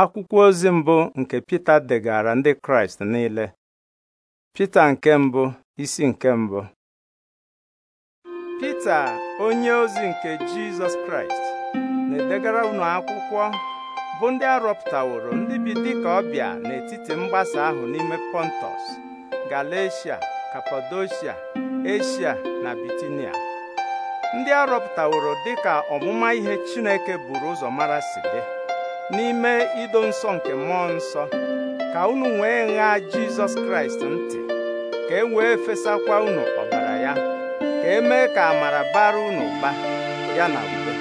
akwụkwọ ozi mbụ nke Pita degara ndị Kraịst niile Pita nke mbụ isi nke mbụ Pita onye ozi nke Jizọs Kraịst na-edegara unu akwụkwọ bụ ndị arọpụtaworo ndị bi dịka ọbịa n'etiti mgbasa ahụ n'ime Pọntọs Galatia Kapadoshia Eshia na Bitinia ndị arọpụtaworo dịka ọmụma ihe Chineke buru ụzọ mara si dị n'ime ido nsọ nke mmụọ nsọ ka unu nwee ṅaa jizọs kraịst ntị ka e wee fesakwa unu ọbara ya ka e mee ka amara bara unu ụba ya na udo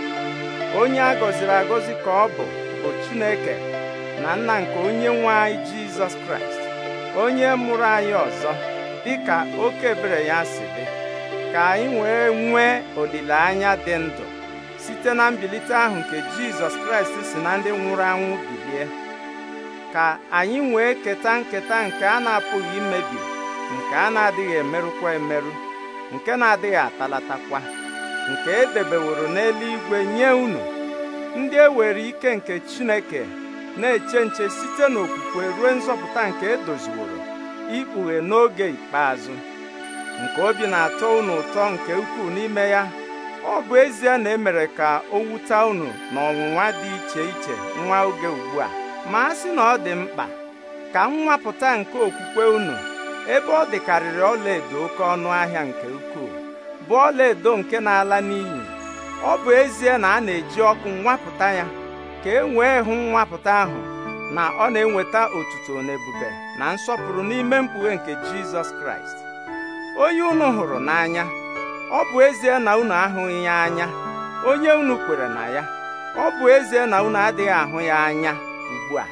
onye a gọziri agọzi ka ọ bụ bụ chineke na nna nke onye nwe anyị jizọs kraịst onye mụrụ anyị ọzọ dịka oke ya si dị ka anyị wee nwee olileanya dị ndụ site na mbilite ahụ nke Jizọs Kraịst si na ndị nwụrụ anwụ bilie ka anyị wee keta nketa nke a na-apụghị imebi nke a na-adịghị emerụkwa emerụ nke na-adịghị atalatakwa nke e edebeworo n'eluigwe nye unu ndị e ewere ike nke Chineke na-eche nche site n'okwukwe ruo nzọpụta nke edoziworo ikpughe n'oge ikpeazụ nke obi na-atọ unu ụtọ nke ukwuu n'ime ya ọ bụ ezie na emere ka o wuta unu na ọnwụnwa dị iche iche nwa oge ugbu a ma a sị na ọ dị mkpa ka nwapụta nke okwukwe unu ebe ọ dịkarịrị ọlaedo oke ọnụ ahịa nke ukwuu bụ ọlaedo nke na-ala n'iyi ọ bụ ezie na a na-eji ọkụ nwapụta ya ka e wee hụ nwapụta ahụ na ọ na-enweta otuto na ebube na nsọpụrụ n'ime mkpughe nke Jizọs Kraịst onye unu hụrụ n'anya ọ bụ ezie na unu ahụghị ya anya onye unu kwere na ya ọ bụ ezie na unu adịghị ahụ ya anya ugbu a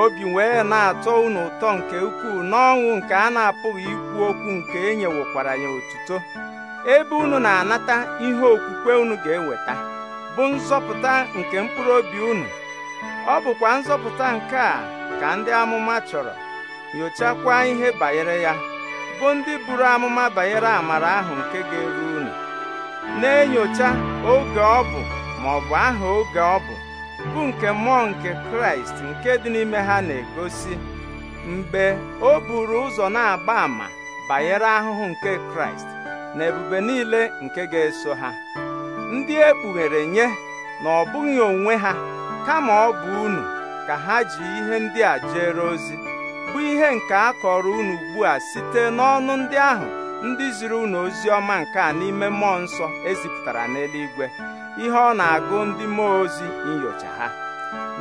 obi wee na-atọ unu ụtọ nke ukwuu n'ọnwụ nke a na-apụghị ikwu okwu nke enyewekwara ya otuto ebe unu na-anata ihe okwukwe unu ga-eweta bụ nzọpụta nke mkpụrụ obi unu ọ bụkwa nzọpụta nke a ka ndị amụma chọrọ nyochakwa ihe banyere ya bụ ndị buru amụma banyere amara ahụ nke ga-eru unu na-enyocha oge ọ bụ ma ọ bụ aha oge ọ bụ bụ nke mmụọ nke kraịst nke dị n'ime ha na-egosi mgbe o buru ụzọ na-agba ama banyere ahụhụ nke kraịst na ebube niile nke ga-eso ha ndị e kpughere nye na ọ bụghị onwe ha kama ọ bụ unu ka ha ji ihe ndị a jere ozi bụ ihe nke a kọrọ unu ugbu a site n'ọnụ ndị ahụ ndị ziri unu ozi ọma nke a n'ime mmụọ nsọ ezipụtara n'eluigwe ihe ọ na-agụ ndị mmụọ ozi nyocha ha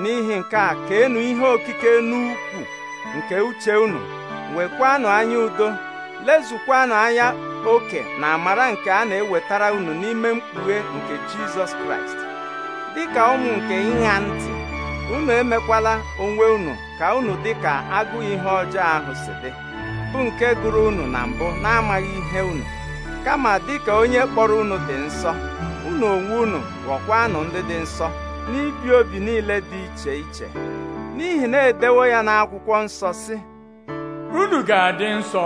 n'ihi nke a ka enu ihe okike n'ukwu nke uche unu nwekwanụ anya udo lezukwanụ anya oke na amara nke a na-ewetara unu n'ime mkpughe nke Jizọs Kraịst Dị ka ụmụ nke ịṅa ntị unu emekwala onwe unu ka unu dị ka agụ ihe ọjọọ ahụ si dị bụ nke gụrụ unu na mbụ na-amaghị ihe unu kama dị ka onye kpọrọ unu dị nsọ unu onwe unu ghọkwanụ ndị dị nsọ n'ibi obi niile dị iche iche n'ihi na edewo ya n'akwụkwọ nsọ si unu ga-adị nsọ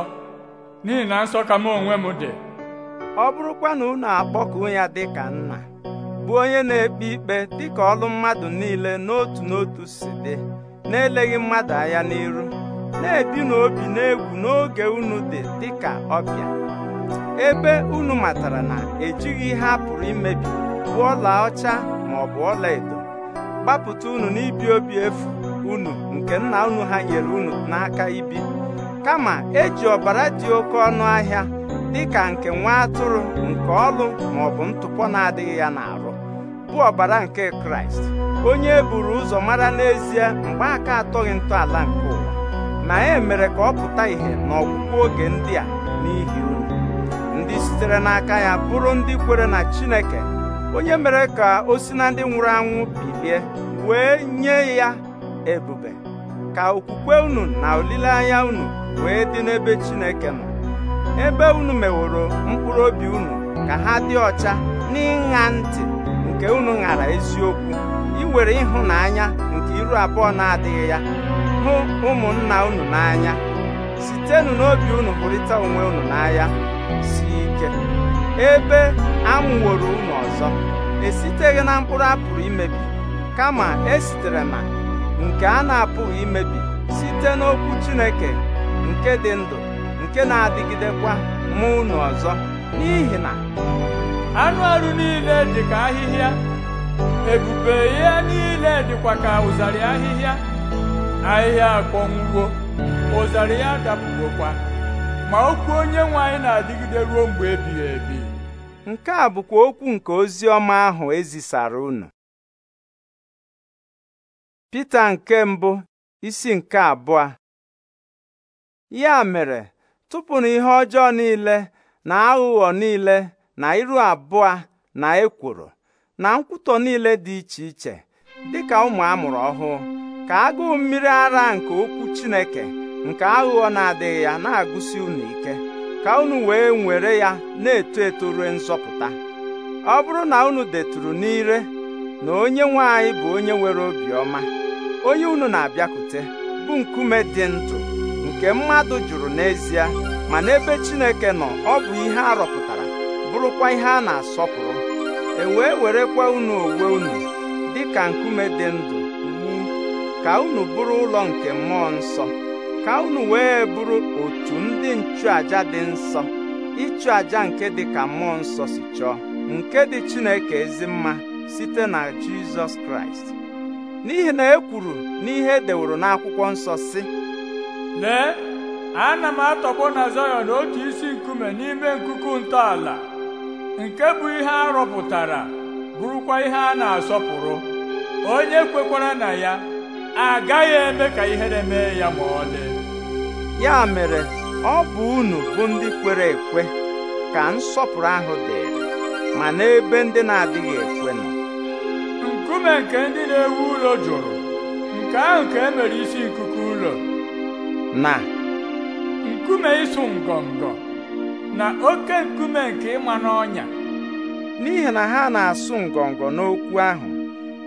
n'ihi na nsọ ka m onwe m dị ọ bụrụkwa na unu akpọkụ ya dị ka nna bụ onye na-ekpe ikpe dịka ọlụ mmadụ niile n'otu n'otu si dị na-eleghị mmadụ anya n'iru na-ebi n'obi n'egwu n'oge unu dị dịka ọbịa ebe unu matara na ejighị ihe a pụrụ imebi bụ ọla ọcha ma ọ bụ ọla edo gbapụta unu n'ibi obi efu unu nke nna unu ha nyere unu n'aka ibi kama eji ọbara dị oke ọnụ ahịa dịka nke nwa atụrụ nke ọlụ ma ọ bụ ntụpọ na-adịghị ya n'arụ bụ ọbara nke kraịst onye e buru ụzọ mara n'ezie mgbe aka atọghị ntọala nke ụwa na e mere ka ọ pụta ìhè n'ọgwụgwụ oge ndị a n'ihi unu ndị sitere n'aka ya bụrụ ndị kwere na chineke onye mere ka o si na ndị nwụrụ anwụ bilie wee nye ya ebube ka okwukwe unu na olileanya unu wee dị n'ebe chineke nọ ebe unu meworo mkpụrụ obi unu ka ha dị ọcha n'ịṅa ntị nke unu ṅara eziokwu iwere ịhụnanya nke iru abụọ na-adịghị ya hụ ụmụnna unu n'anya sitenụ n'obi unu hụrịta onwe unu n'anya si ike ebe amụworo unu ọzọ esiteghị na mkpụrụ a pụrụ imebi kama esitere na nke a na-apụghị imebi site n'okwu Chineke nke dị ndụ nke na-adịgidekwa mụ unu ọzọ n'ihi na anụ arụ niile dị ka ahịhịa ebube ihe niile dịkwa ka ụzarị ahịhịa ahịhịa akpọnwụwo ụzarị ya dapụwokwa ma okwu onye nwe anyị na-adịgide ruo mgbe ebighị ebi nke a bụkwa okwu nke ozi ọma ahụ ezisara unu Pita nke mbụ isi nke abụọ ya mere tụpụnụ ihe ọjọọ niile na aghụghọ niile na iru abụọ na ekworo na nkwutọ niile dị iche iche dịka ụmụ amụrụ ọhụụ ka agụụ mmiri ara nke okwu Chineke nke aghụghọ na-adịghị ya na-agụsi unu ike ka unu wee nwere ya na-eto eto ruo nzọpụta ọ bụrụ na unu deturu n'ire na onye nwanyị bụ onye nwere obiọma onye unu na-abịakwute bụ nkume dị ndụ nke mmadụ jụrụ n'ezie ma n'ebe Chineke nọ ọ bụ ihe arọpụta bụrụkwa ihe a na-asọpụrụ e wee werekwa unu owe unu dị ka nkume dị ndụ wu ka unu bụrụ ụlọ nke mmụọ nsọ ka unu wee bụrụ otu ndị nchụaja dị nsọ ịchụ aja nke dị ka mmụọ nsọ si chọọ nke dị Chineke ezi mma site na Jizọs Kraịst n'ihi na e kwuru n'ihe e deworo n'akwụkwọ nsọ si lee ana m atọgbọ na Zayọn otu isi nkume n'ime nkuku ntọala nke bụ ihe a rọpụtara bụrụkwa ihe a na-asọpụrụ onye kwekwara na ya agaghị eme ka ihere mee ya ma ọlị ya mere ọ bụ unu bụ ndị kwere ekwe ka nsọpụrụ ahụ dị, ma n'ebe ndị na-adịghị ekwe nọ nkume nke ndị na-ewu ụlọ jụrụ nke ahụ ka e mere isi nkuku ụlọ na nkume ịsụ ngọngọ na oke nkume nke ịma n'ọnya n'ihi na ha na-asụ ngọngọ n'okwu ahụ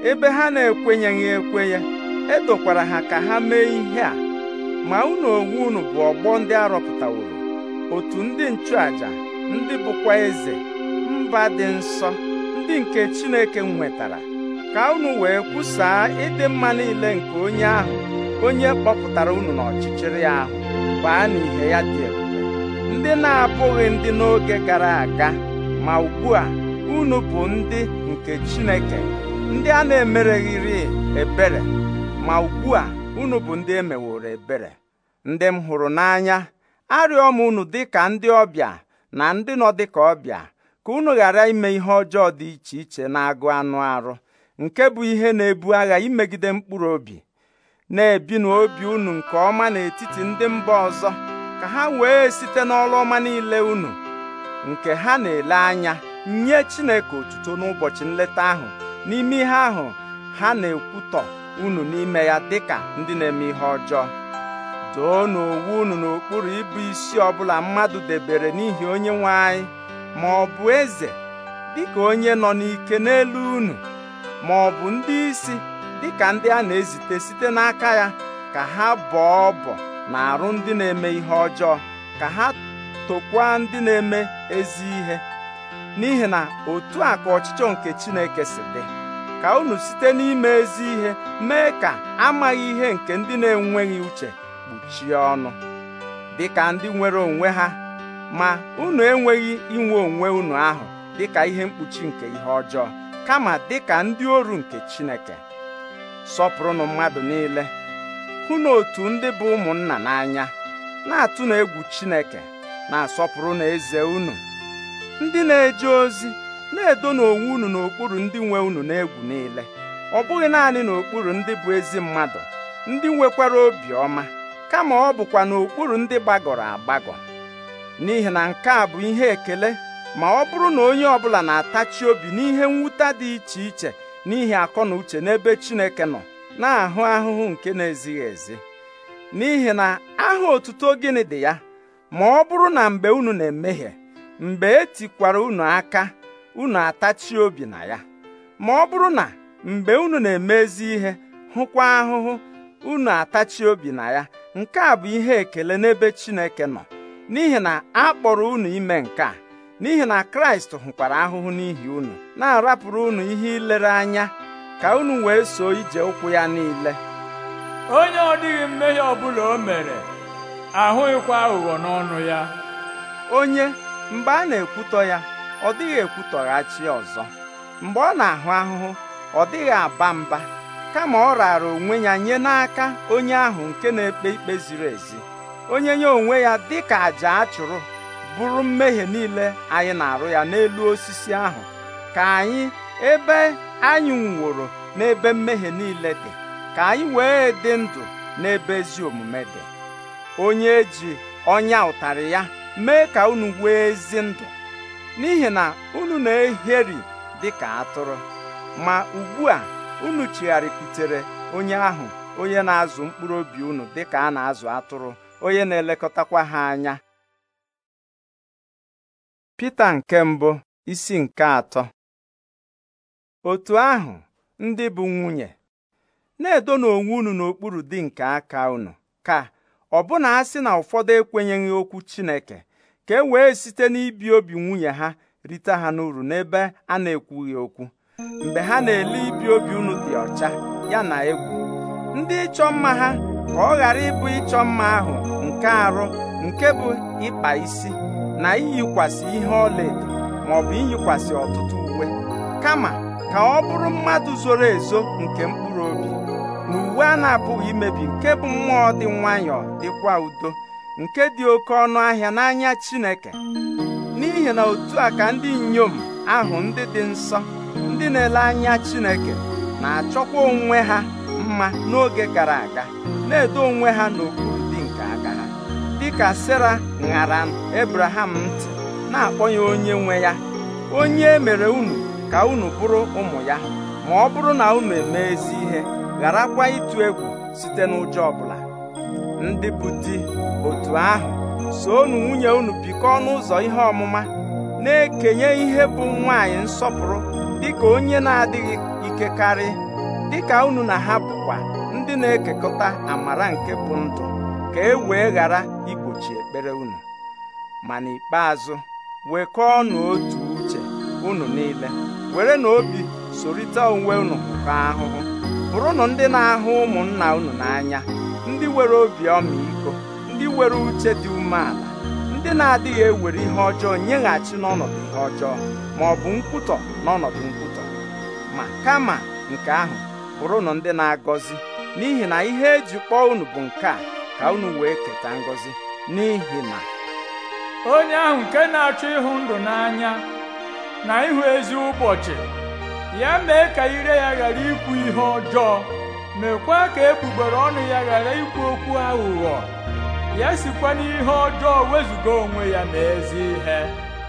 ebe ha na-ekwenyeghị ekwenye edokwara ha ka ha mee ihe a ma unu onwe unu bụ ọgbọ ndị arọpụtaworo otu ndị nchụaja ndị bụkwa eze mba dị nsọ ndị nke Chineke nwetara ka unu wee kwusaa ịdị mma niile nke onye ahụ onye kpọpụtara unu n'ọchịchịrị ahụ baa n'ihe ya dị egwu ndị na-abụghị ndị n'oge gara aga ma ugbu a unu bụ ndị nke Chineke ndị a na-emereghịrị ebere ma ugbu a unu bụ ndị emeworo ebere ndị m hụrụ n'anya arịọ m unu dị ka ndị ọbịa na ndị nọ dị ka ọbịa ka unu ghara ime ihe ọjọọ dị iche iche na-agụ anụ arụ nke bụ ihe na-ebu agha imegide mkpụrụ obi na-ebi n'obi unu nke ọma n'etiti ndị mba ọzọ ka ha wee site n'ọrụ ọma niile unu nke ha na-ele anya nye Chineke otuto n'ụbọchị nleta ahụ n'ime ihe ahụ ha na-ekwutọ unu n'ime ya dịka ndị na-eme ihe ọjọọ doo n'owu unu n'okpuru ịbụ isi ọbụla mmadụ debere n'ihi onye nwe anyị ma ọ bụ eze dịka onye nọ n'ike n'elu unu ma ọ bụ ndị isi dịka ndị a na-ezite site n'aka ya ka ha bọọ ọbọ na arụ ndị na-eme ihe ọjọọ ka ha tokwa ndị na-eme ezi ihe n'ihi na otu a ka ọchịchọ nke Chineke si dị ka unu site n'ime ezi ihe mee ka amaghị ihe nke ndị na-enweghị uche kpuchie ọnụ dịka ndị nwere onwe ha ma unu enweghị inwe onwe unu ahụ dịka ihe mkpuchi nke ihe ọjọọ kama dịka ndị oru nke Chineke sọpụrụnụ mmadụ niile hụ otu ndị bụ ụmụnna n'anya na-atụ na egwu Chineke na-asọpụrụ na eze unu ndị na-eje ozi na-edo n'onwe unu n'okpuru ndị nwe unu n'egwu niile ọ bụghị naanị n'okpuru ndị bụ ezi mmadụ ndị nwekwara obi ọma kama ọ bụkwa n'okpuru ndị gbagọrọ agbagọ n'ihi na nke a bụ ihe ekele ma ọ bụrụ na onye ọbụla na-atachi obi n'ihe nwụta dị iche iche n'ihi akọ na uche n'ebe Chineke nọ na-ahụ ahụhụ nke na-ezighị ezi n'ihi na aha otuto gịnị dị ya ma ọ bụrụ na mgbe unu na-emehie mgbe etikwara unu aka unu atachi obi na ya ma ọ bụrụ na mgbe unu na eme ezi ihe hụkwa ahụhụ unu atachi obi na ya nke a bụ ihe ekele n'ebe Chineke nọ n'ihi na a kpọrọ unu ime nke a n'ihi na Kraịst hụkwara ahụhụ n'ihi unu na-arapụrụ unu ihe ilere anya ka unu wee soo ije ụkwụ ya niile onye ọ dịghị mmehie ọbụla o mere ahụghịkwa aghụghọ n'ọnụ ya onye mgbe a na-ekwutọ ya ọ dịghị ekwutọghachi ọzọ mgbe ọ na-ahụ ahụhụ ọ dịghị aba mba kama ọ raara onwe ya nye n'aka onye ahụ nke na-ekpe ikpe ziri ezi onye nye onwe ya dị ka àjà a chụrụ bụrụ mmehie niile anyị na-arụ ya n'elu osisi ahụ ka anyị ebe anyị nwụrụ n'ebe mmehie niile dị ka anyị wee dị ndụ n'ebe ezi omume dị onye ji ọnya ụtarị ya mee ka unu wee ezi ndụ n'ihi na unu na-eheri dị ka atụrụ ma ugbu a unu chigharịkwutere onye ahụ onye na-azụ mkpụrụ obi unu dị ka a na-azụ atụrụ onye na-elekọtakwa ha anya Pita nke mbụ isi nke atọ otu ahụ ndị bụ nwunye na-edona onwe unu n'okpuru di nke aka unu ka ọbụna ha sị na ụfọdụ ekwenyeghị okwu Chineke ka e wee site n'ibi obi nwunye ha rite ha n'uru n'ebe a na-ekwughị okwu mgbe ha na-ele ibi obi unu dị ọcha ya na egwu ndị ịchọ mma ha ka ọ ghara ịbụ ịchọ mma ahụ nke arụ nke bụ ịkpa isi na iyikwasị ihe ọlaedo maọbụ ọ iyikwasị ọtụtụ uwe kama ka ọ bụrụ mmadụ zoro ezo nke mkpụrụ obi na uwe a na-apụghị imebi nke bụ mmụọ dị nwayọọ dịkwa udo nke dị oke ọnụ ahịa n'anya Chineke n'ihi na otu a ka ndị inyom ahụ ndị dị nsọ ndị na-ele anya Chineke na-achọkwa onwe ha mma n'oge gara aga na-edo onwe ha n'okpuru dị nke aga ha dịka Sera ṅara Abraham ntị na-akpọ ya onye nwe ya onye e mere unu ka unu bụrụ ụmụ ya ma ọ bụrụ na unu emee ezi ihe gharakwa ịtụ egwu site n'ụjọ ọbụla ndị bụ di otu ahụ soonu nwunye unu bikọọ n'ụzọ ihe ọmụma na-ekenye ihe bụ nwaanyị nsọpụrụ dịka onye na-adịghị ike karị dịka unu na ha bụkwa ndị na-ekekọta amara nke bụ ndụ ka e wee ghara igbochi ekpere unu ma n'ikpeazụ wekọọnụ otu uche unu niile were na obi sorita onwe unu ka ahụhụ bụrụnụ ndị na-ahụ ụmụnna unu n'anya ndị nwere obi ọmịiko ndị nwere uche dị umeala ndị na-adịghị ewere ihe ọjọọ nyeghachi n'ọnọdụ ihe ọjọọ ma ọ bụ nkwutọ n'ọnọdụ nkwutọ ma kama nke ahụ bụrụnụ ndị na-agọzi n'ihi na ihe eji kpọọ unu bụ nke a ka unu wee keta ngọzi n'ihi na onye ahụ nke na-achọ ịhụ ndụ n'anya na ịhụ ezi ụbọchị ya mee ka ire ya ghara ikwu ihe ọjọọ mekwa ka egbugbere ọnụ ya ghara ikwu okwu aghụghọ ya sikwa n'ihe ọjọọ wezụga onwe ya na ezi ihe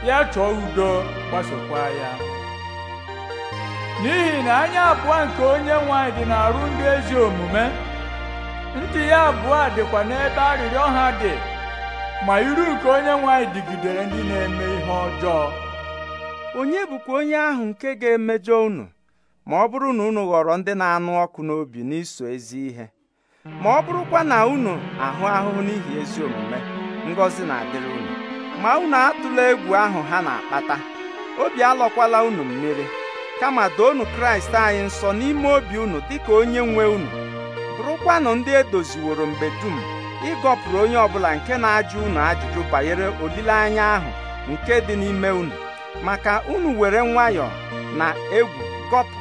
ya chọọ udo gbasokwa ya n'ihi na anya abụọ nke onye nwanyị dị n'arụ ndị ezi omume ntị ya abụọ dịkwa n'ebe arịrịọ ha dị ma iru nke onye nwanyị dịgidere ndị na-eme ihe ọjọọ onye bụkwa onye ahụ nke ga-emejọ unu ma ọ bụrụ na unu ghọrọ ndị na-anụ ọkụ n'obi n'iso ezi ihe ma ọ bụrụkwa na unu ahụ ahụhụ n'ihi ezi omume ngọzi na-adịrị unu ma unu atụla egwu ahụ ha na-akpata obi alọkwala unu mmiri kama doonu kraịst anyị nsọ n'ime obi unu dịka onye nwe unu bụrụkwanụ ndị edoziworo mgbe dum ịgọpụrụ onye ọbụla nke na-ajụ unu ajụjụ banyere olileanya ahụ nke dị n'ime unu maka unu were nwayọọ na egwu gọpụ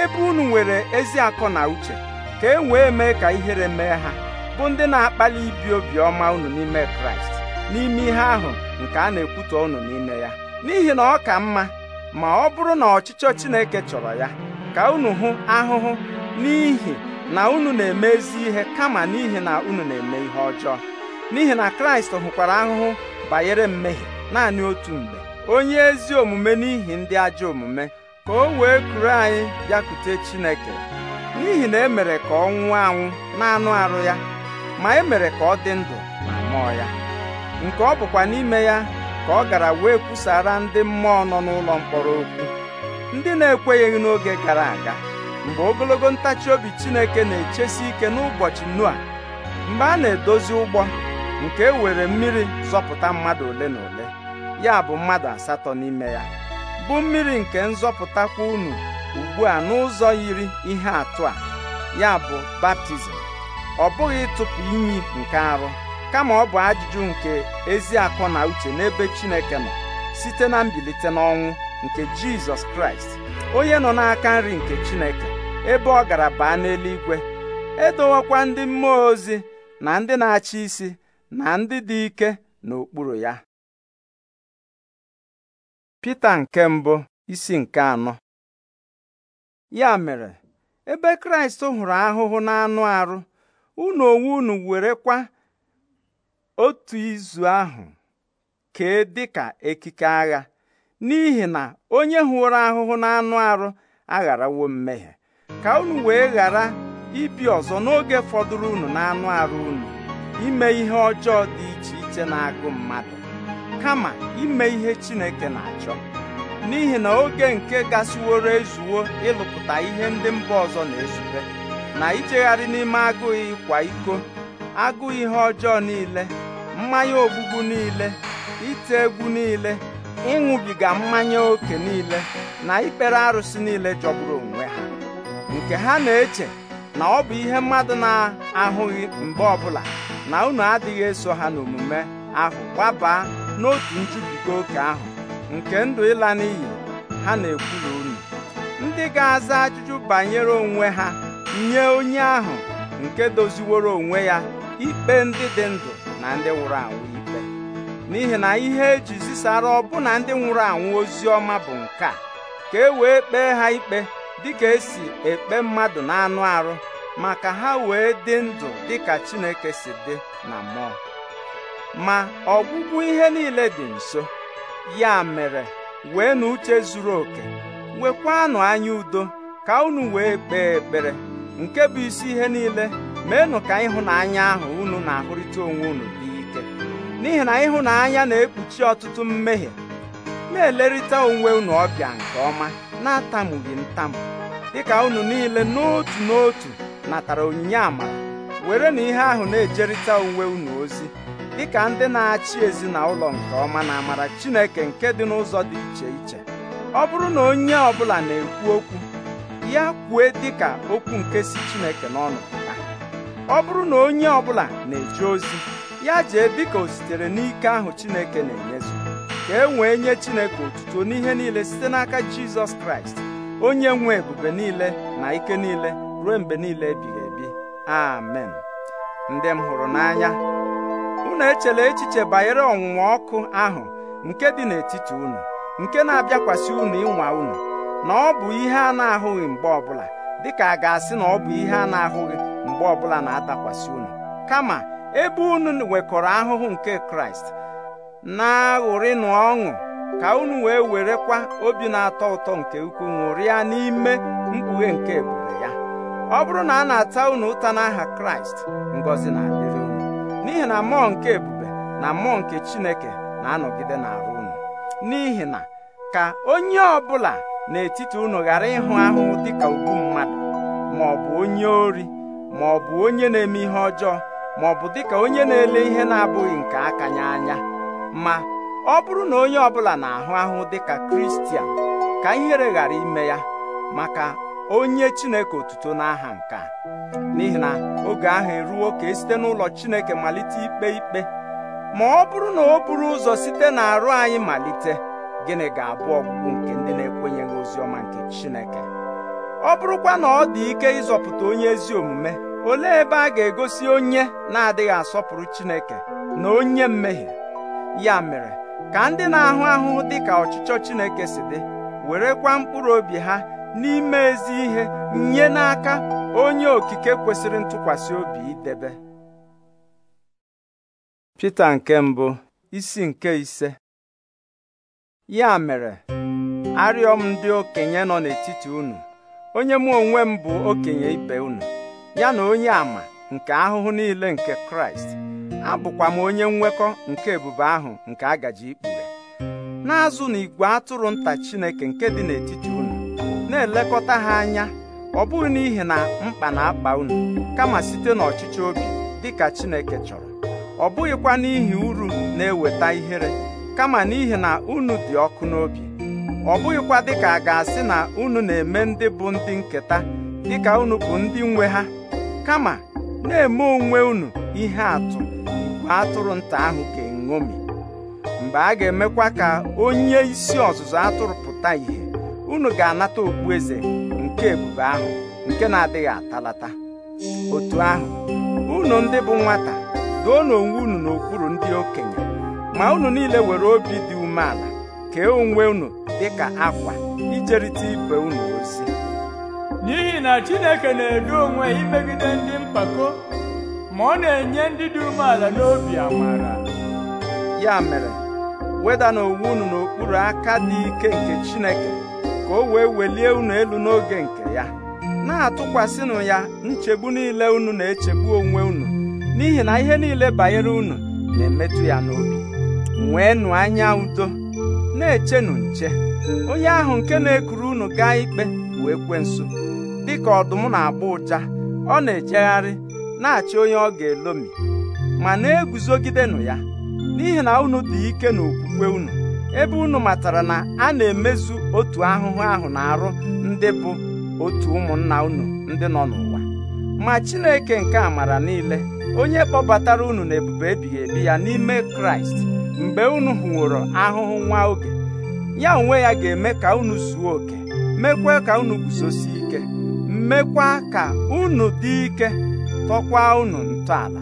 ebe unu nwere ezi akọ na uche ka e wee mee ka ihere mee ha bụ ndị na-akpali ibi obiọma unu n'ime kraịst n'ime ihe ahụ nke a na-ekwutọ unu n'ime ya n'ihi na ọ ka mma ma ọ bụrụ na ọchịchọ chineke chọrọ ya ka unu hụ ahụhụ n'ihi na unu na-eme ezi ihe kama n'ihi na unu na-eme ihe ọjọọ n'ihi na kraịst hụkwara ahụhụ banyere mmehie naanị otu mgbe onye ezi omume n'ihi ndị ajọ omume ka o wee kuru anyị bịakute Chineke n'ihi na emere ka ọ nwụọ anwụ na-anụ arụ ya ma emere ka ọ dị ndụ ma mmụọ ya nke ọ bụkwa n'ime ya ka ọ gara wee kwusara ndị mmụọ nọ n'ụlọ mkpọrọ okwu ndị na-ekwenyeghị n'oge gara aga mgbe ogologo ntachi obi Chineke na-echesi ike n'ụbọchị a mgbe a na-edozi ụgbọ nke e were mmiri zọpụta mmadụ ole na ole ya bụ mmadụ asatọ n'ime ya bụ mmiri nke nzọpụtakwa unu ugbu a n'ụzọ yiri ihe atụ a ya bụ baptizim ọ bụghị ịtụpụ iyi nke arụ kama ọ bụ ajụjụ nke ezi akọ na uche n'ebe Chineke nọ site na mbilite n'ọnwụ nke Jizọs Kraịst onye nọ n'aka nri nke Chineke ebe ọ gara baa n'eluigwe edowekwa ndị mmụọ ozi na ndị na-achị isi na ndị dị ike n'okpuru ya Pita nke mbụ isi nke anọ ya mere ebe Kraịst hụrụ ahụhụ n'anụ arụ unu onwe unu were kwa otu izu ahụ kee ka ekike agha n'ihi na onye hụrụ ahụhụ n'anụ arụ agharawo mmehie ka unu wee ghara ibi ọzọ n'oge fọdụrụ unu n'anụ arụ unu ime ihe ọjọọ dị iche iche na-agụ mmadụ kama ime ihe Chineke na-achọ n'ihi na oge nke gasịworo ezuwo ịlụpụta ihe ndị mba ọzọ na-ezube na ichegharị n'ime agụụ ịkwa iko agụụ ihe ọjọọ niile mmanya ogbugbu niile ite egwu niile ịṅụbiga mmanya ókè niile na ikpere arụsị niile jọgburu onwe ha nke ha na-eche na ọ bụ ihe mmadụ na-ahụghị mgbe ọbụla na unu adịghị eso ha n'omume ahụ gbabaa n'otu nchubiga oke ahụ nke ndụ ịla n'iyi ha na-ekwuru unu ndị ga-aza ajụjụ banyere onwe ha nye onye ahụ nke doziworo onwe ya ikpe ndị dị ndụ na ndị nwụrụ anwụ ikpe n'ihi na ihe eji zisara ọbụna ndị nwụrụ anwụ ozi ọma bụ nke a ka e wee kpee ha ikpe dịka esi ekpe mmadụ na anụ arụ maka ha wee dị ndụ dịka Chineke si dị na mmụọ ma ọgwụgwụ ihe niile dị nso ya mere wee na uche zuru oke nwekwanụ anya udo ka unu wee kpee ekpere nke bụ isi ihe niile meenụ ka ịhụnanya ahụ unu na-ahụrịta onwe unu dị ike n'ihi na ịhụnanya na-ekpuchi ọtụtụ mmehie na-elerịta onwe unu ọbịa nke ọma na-atamughị ntamu dịka unu niile n'otu n'otu natara onyinye amara were na ihe ahụ na-ejerịta onwe unu ozi dịka ndị na-achị ezinụlọ nke ọma na amara Chineke nke dị n'ụzọ dị iche iche ọ bụrụ na onye ọ bụla na-ekwu okwu ya kwue dịka okwu nke si Chineke n'ọnụ pụta ọ bụrụ na onye ọ bụla na-eje ozi ya jee ka o sitere n'ike ahụ Chineke na-enyezu ka e wee nye Chineke otuto n'ihe niile site n'aka Jizọs Kraịst onye nwe ebube niile na ike niile ruo mgbe niile ebighị ebi amen ndị m hụrụ n'anya na echela echiche banyere ọnwụnwa ọkụ ahụ nke dị n'etiti unu nke na-abịakwasị unu ịnwa unu na ọ bụ ihe a na-ahụghị mgbe ọbụla dịka a ga-asị na ọ bụ ihe a na-ahụghị mgbe ọbụla na-atakwasị unu kama ebe unu nwekọrọ ahụhụ nke Kraịst na-aṅụrịnụ ọṅụ ka unu wee werekwa obi na-atọ ụtọ nke ukwuu ṅụrịa n'ime mkpughe nke ebube ya ọ bụrụ na a na-ata unu ụta n'aha Kraịst ngọzi na n'ihi na mmụọ nke ebube na mmụọ nke chineke na-anọgide n'arụ unu n'ihi na ka onye ọbụla n'etiti unu ghara ịhụ ahụhụ dịka ugwu mmadụ ma ọ bụ onye ori ma ọ bụ onye na-eme ihe ọjọọ ma ọ bụ dịka onye na-ele ihe na-abụghị nke aka ya anya ma ọ bụrụ na onye ọbụla na-ahụ ahụ dịka kristian ka ihere ghara ime ya maka onye chineke otuto n'aha nke a n'ihi na oge ahụ eruo ka esite n'ụlọ Chineke malite ikpe ikpe ma ọ bụrụ na o buru ụzọ site n'arụ anyị malite gịnị ga-abụ ọgwụgwụ nke ndị na-ekwenyeghị ozi ọma nke Chineke ọ bụrụkwa na ọ dị ike ịzọpụta onye ezi omume olee ebe a ga-egosi onye na-adịghị asọpụrụ Chineke na onye mmehie ya mere ka ndị na-ahụ ahụhụ dị ka ọchịchọ Chineke si dị werekwa mkpụrụ obi ha n'ime ezi ihe nye n'aka onye okike kwesịrị ntụkwasị obi idebe Pita nke mbụ isi nke ise ya mere arịọ m ndị okenye nọ n'etiti unu onye mụ onwe m bụ okenye ibe unu ya na onye ama nke ahụhụ niile nke Kraịst abụkwa m onye nwekọ nke ebube ahụ nke agaji ikpughe na-azụ na igwe atụrụ nta Chineke nke dị n'etiti unu na-elekọta ha anya ọ bụghị n'ihi na mkpa na-akpa unu kama site n'ọchịchị obi dịka Chineke chọrọ ọ bụghịkwa n'ihi uru na-eweta ihere kama n'ihi na unu dị ọkụ n'obi ọ bụghịkwa dịka a ga-asị na unu na-eme ndị bụ ndị nketa dịka unu bụ ndị nwe ha kama na-eme onwe unu ihe atụ igwe atụrụ nta ahụ ga-eṅomi mgbe a ga-emekwa ka onye isi ọzụzụ atụrụ pụta ìhè unu ga-anata okpueze nke ebube ahụ nke na-adịghị atalata otu ahụ unu ndị bụ nwata doo onwe unu n'okpuru ndị okenye ma unu niile were obi dị umeala kee onwe unu dịka akwa ijerịta ibe unu ozi n'ihi na Chineke na-edo onwe imegide ndị mpako ma ọ na-enye ndị dị umeala n'obi amara ya mere weda n'onwe unu n'okpuru aka dị ike nke Chineke ka o wee welie unu elu n'oge nke ya na-atụkwasịnụ ya nchegbu niile unu na-echegbu onwe unu n'ihi na ihe niile banyere unu na-emetụ ya n'obi nweenụ anya udo na-echenụ nche onye ahụ nke na-ekuru unu gaa ikpe bụ Dị dịka ọdụm na-agba ụja ọ na-ejegharị na-achị onye ọ ga-elomi ma na-eguzogidenụ ya n'ihi na unu dị ike n'okwukwe unu ebe unu matara na a na-emezu otu ahụhụ ahụ na arụ ndị bụ otu ụmụnna unu ndị nọ n'ụwa ma Chineke nke amara niile onye kpọbatara unu ebube ebighị ebi ya n'ime Kraịst mgbe unu hụworo ahụhụ nwa oge ya onwe ya ga-eme ka unu zuo oke mekwa ka unu guzosi ike mekwa ka unu dị ike tọkwa unu ntọala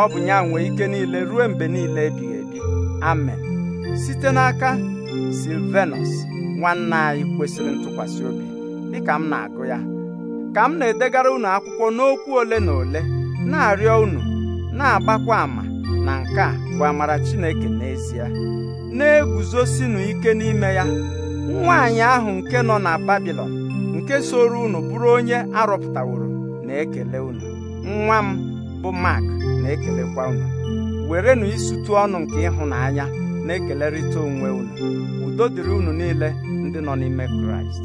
ọ bụ ya nwe ike niile ruo mgbe niile ebighị ebi amen site n'aka silvenus nwanne anyị kwesịrị ntụkwasị obi dịka m na-agụ ya ka m na-edegara unu akwụkwọ n'okwu ole na ole na-arịọ unu na-agbakwa ama na nke a bụ amara Chineke n'ezie na-eguzosinu ike n'ime ya nwaanyị ahụ nke nọ na Babilọn nke soro unu bụrụ onye arọpụtaworo na-ekele unu nwa m bụ Mark na-ekelekwa unu werenụ isutụ ọnụ nke ịhụnanya na-ekelerịta onwe unu udo dịrị unu niile ndị nọ n'ime kraịst